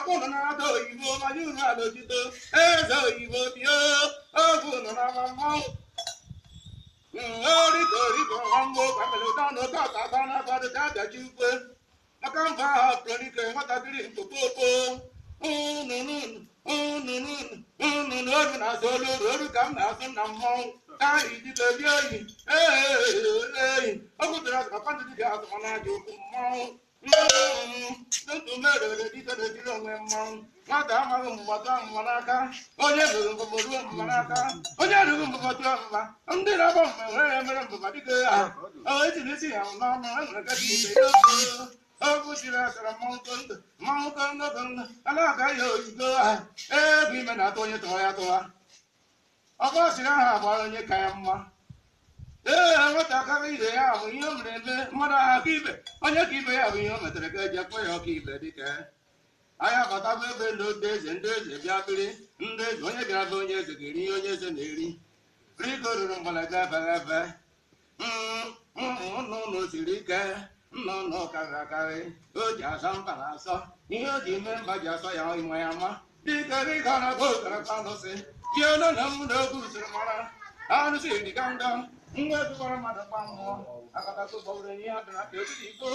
akwụna na-ata oyibo manya unu alọjito eze oyibo bịa oge na mmanwụ orito mmanwụ ukwe aka mba ahụ pụrụnike nwatakịrị mkpokpo ununu olu na-azụ olu olu ka m na-azụ na mmanwụ ahụ dịka ebi oyi eyi o kwutara azụ ka pandị dị ga-azụ mana aja okwu mmanwụ ntutu mere dịka enwe mmanwụ nwata amaghị mgbata mma n'aka onye ruru mbụbọ ruo mma n'aka onye ruru mbụbọ tụọ mma ndị na-agba mma nwere emere mbụbọ dịka ya etiri isi ya n'ọnụ enwere gadi ibe okwu siri akara mmanwụ kondụ mmanwụ kondụ kondụ a na-aga ya oyigo ha egwu ime na-atụ onye tụọ ya tụwa ọkọ siri aha agbara onye ka ya mma ee nwatakịrị ibe ya bụ ihe o mere eme mmadụ ahụ aka ibe onye ka ibe ya bụ ihe o metere ka eji akpọ ya ọka ibe dịka anyị bụ ebe ndị otu eze ndị eze bịa biri ndị eze onye bịara be onye eze ga-eri ihe onye eze na-eri rigororo mgbalaga abaghị aba ụmụnna ụlọ mm, mm, mm, siri ike nna ụlọ karịrị akarị o ji asọ mba na asọ ihe o ji mee mba ji asọ ya ịma ya ma dịka rịga na-agba okaraka alụsị ji olu na m na oge usoro mara arụsị dịga ndọ nwa ebikwara mmadụ gba mmụọ akatakụbọụrụ ihe adịra ka ezigbo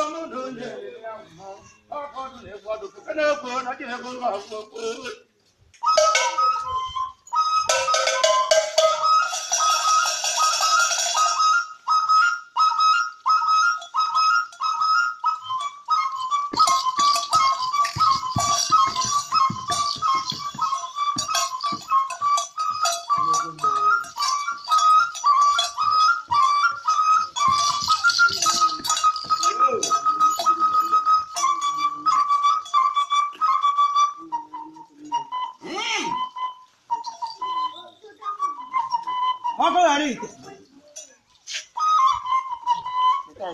ọnụ na onye ọkọ̀ ọdún lè gbọ́dọ̀ kẹ́kẹ́ náà gbọ́ náà jẹ́ ẹ̀kọ́ náà ọkọ rẹ rí ìtẹ.